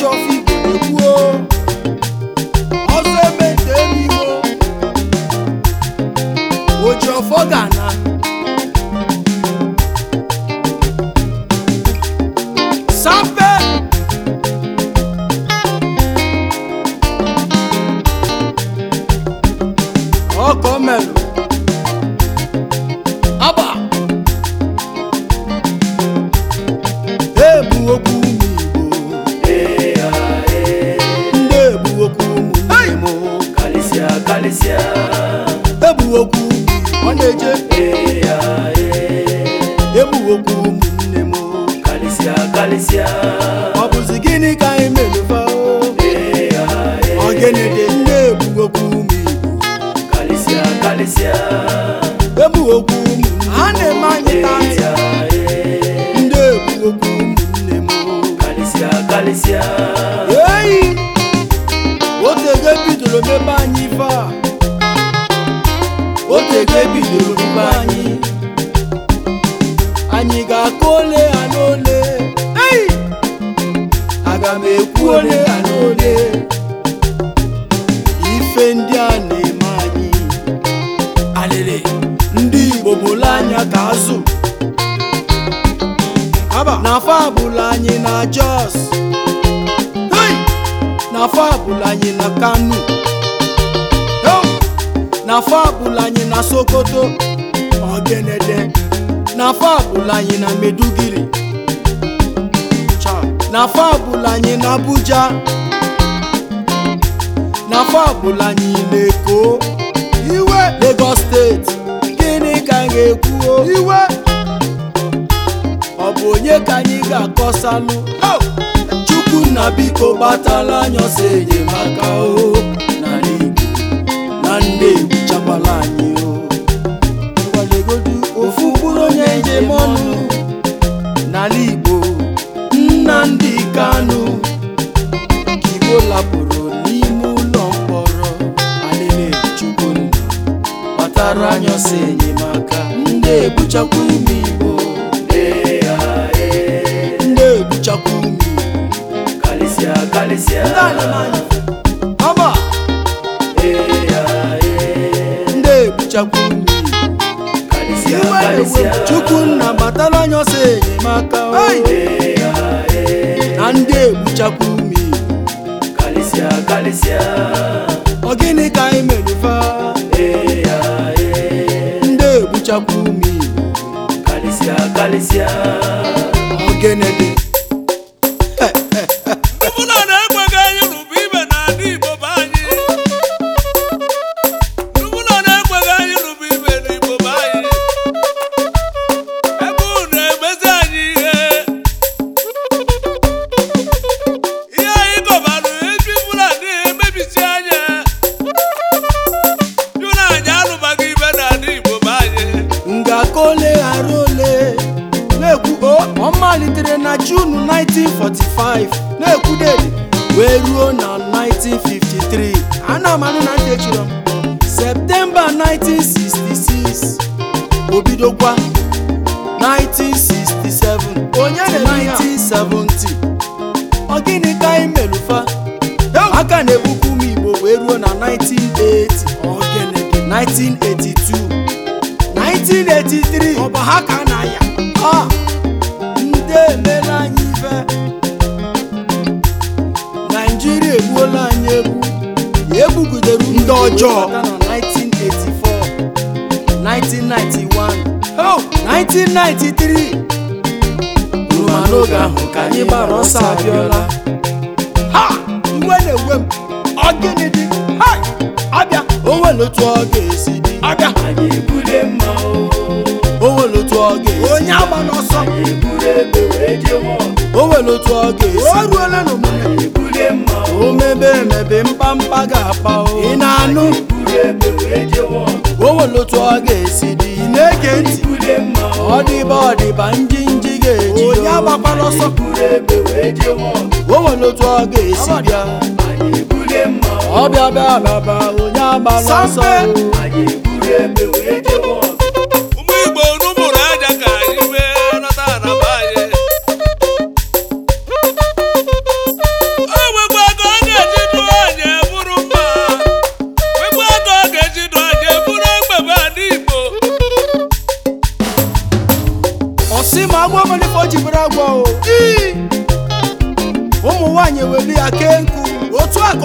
your feet. ọ bụzi gịnị ka anyị meluba ogene dị na-egbugokwu ụmụ igbo karịsịa karịsịa ụmụ a na-eme anyị ndị egbugokwu ụmụnne m karịsịa karịsịa eyi otego mebe anyị ife a mebe anyị ga aga m ekwu ole ha n'ole ife ndị a na-eme anyị alịlị ndị Igbo bụla anya ka azụ na abụla anyị na Jos na abụla anyị na Kano na abụla anyị na Sokoto Ogenede na abụla anyị na Meduguri n'afọ ọbụla anyị na Abuja na anyị na Eko iwe Lagos steeti gịnị ka anyị ga-ekwuo iwe ọ bụ onye ka anyị ga-akọsalụ Chukwu na biko gbatala anyị ọsọ enyemaka o arụ anyọsọ enyemaka ndị ebuchakwa ume igbo ndị ebuchakwa ume karịsịa ndị anamanya ọba ndị e chukwu nna batara anyọsọ enyemaka na ndị ebuchakwa ume ọ gịnị ka anyị merufa Kalisia, kalisia. Ogene dị. ka o ole na-ekwu ọ malitere na 1945 na-ekwudere wee ruo na 1953 ana m na echiri Septemba 1966 obidokwa 1967 onye na 1970 ọ gịnị ka anyị melufa aka na-ebukwu m Igbo wee ruo na 1980 1982 ọ bụ ha ka na ya ọ ndị emela anyị ife naijiria egbuola anyị egwu egbugidere ndị ọjọọ 1984 1991 1993 rụma n'oge ahụ ka anyị gbara ọsọ abịọla ha iwe na-ewe m ọ gịnị dị ha abịa o nwere otu ọ ga-esi dị o nwere otu ọ ga-esi o ruola o mebe emebe mkpamkpa ga-akpa ị na-anụ o otu ọ ga-esi dị na-ege ntị ọ ọdịba ọdịba ndị nji ga-eji onye agbakwala ọsọ o otu ọ ga-esi bịa ọbịa bịa bịa onye ọsọ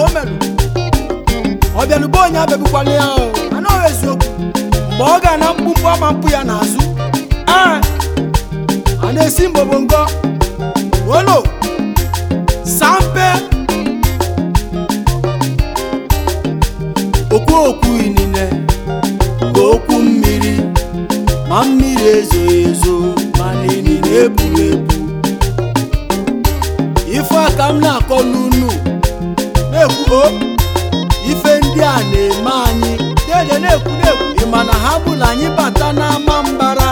ka o merụ ọ onye abịagbukwana ya o anaghị eziokwu mgbe ọ ga na mkpumkpu ama mpụ ya n'azụ ee a na-esi mgbobongo olo sampe okwu okwu inine mgbe okwu mmiri ma mmiri ezo ezo ma na ebu ebu ife aka m na-akọ n'unu na oh, ife ndị a na-eme anyị dede na-ekwu na ha bụrụ anyị bata n'ama mbara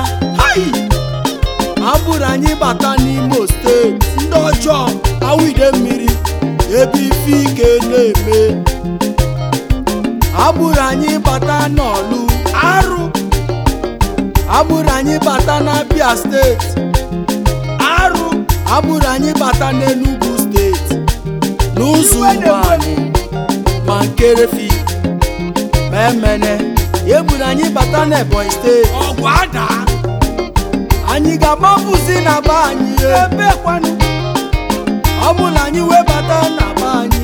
ha bụrụ anyị bata n'Imo steeti ndị ọjọọ awụide mmiri ebe ife ike na-eme bụrụ anyị bata n'ọlụ arụ ha bụrụ anyị bata na steeti arụ bụrụ anyị bata n'Enugu n'ụzọ anyị ma nke refi ma emene ya gburu anyị bata n'Ebonyi steeti anyị ga-agbapụzi na be anyị ebekwanụ ọ bụla anyị wee bata na be anyị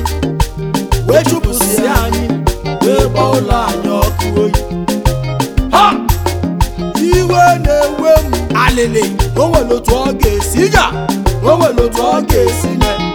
wee chụpụsịa anyị wee gba ụlọ anyị ọkụ oyi iwe na-ewe m alịlị o nwere otu ọ ga-esi ga o otu ọ ga-esi mee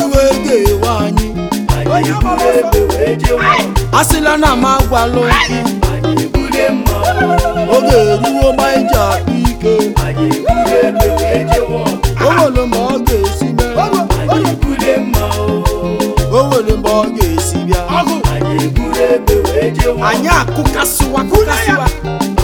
iwe ga-ewe anyị asịla na m agwalụ oge eruo ma iji e akpa ike o nwere mgbe ọ ga-esi mee o ọ ga-esi bịa anyị akụkasịwa akụkasịwa